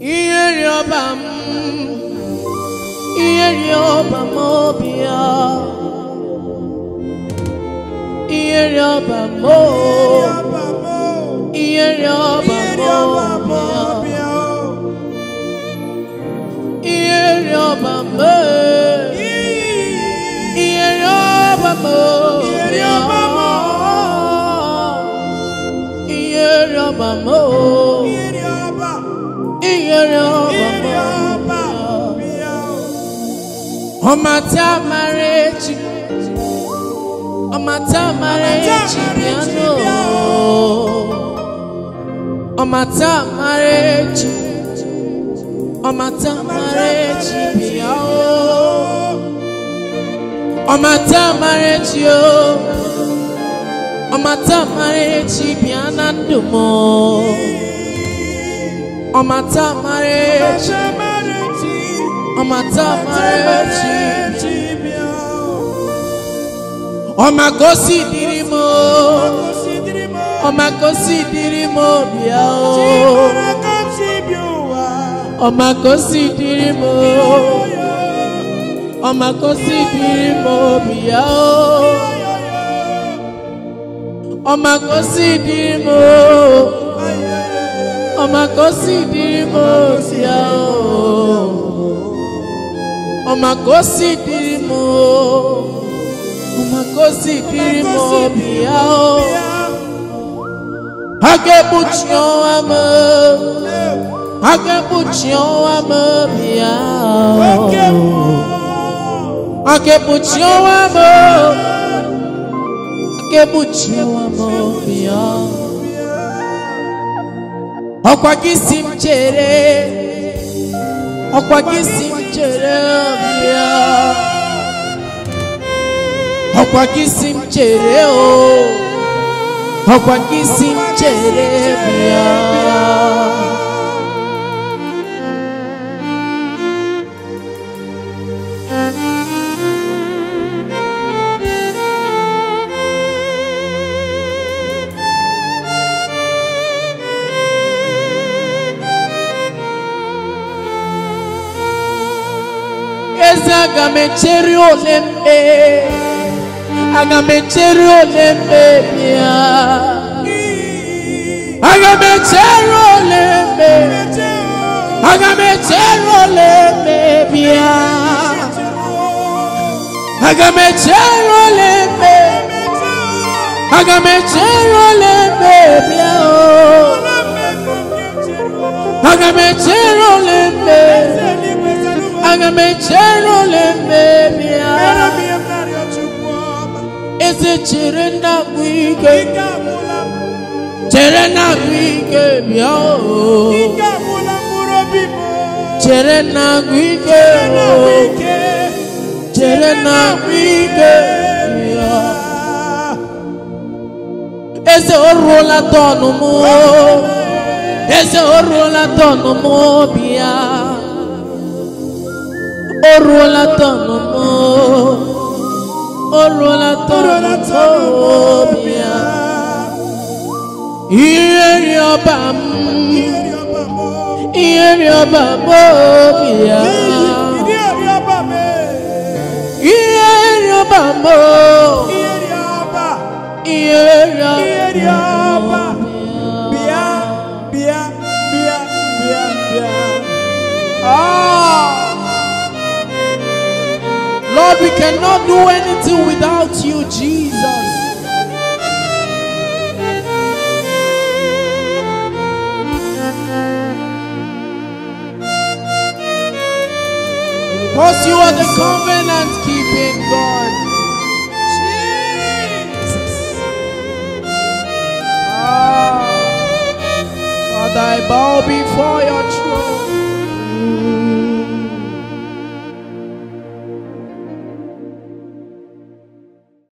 ihere ọba m ihere ọba m obi ya ihere ọba m ihere ọba m obi ya ihere ọba m ihere ọba m obi ya ihere ọba m. iyere ọbọ ọmata amara echi ọmata amara amara na ndụ ọmata mara echi ọmata mara echi ọmagosi dịrị m ọmagosi dịrị m bịa o ọmagosi dịrị m ọmagosi dịrị m bịa o ọmagosi dịrị m. ọmọkọsí di mo sí ẹ o ọmọkọsí di mo ọmọkọsí di mo bí o agbẹ́bùtìọ́ wa mọ́ agbẹ́bùtìọ́ wa mọ́ bí o. Akebuti o amor, akebuti ọkwa gị si m chere ọkwa gị si m chere ọbịa ọkwa gị si m o ọkwa gị si aga m echere ole mkpe aga m echere ole mkpebi ya aga m echere ole mkpe aga m echere ole mkpebi ya aga m echere ole ezi chiri ndagbu ike chere ndagbu ike bịa o chere ndagbu ike o chere ndagbu ike bịa eze o ruola tọnụ mụ eze o ó ruola tọ̀nà mọ́ ó ruola tọ̀nà mọ́ omi a ihe rí ọba mú ihe rí ọba mọ́ omi a ihe rí ọba mọ́ ihe rí ọba. Lord, we cannot do anything without you, Jesus. Because you are the covenant keeping God. Jesus. Ah. Father, I bow before your throne.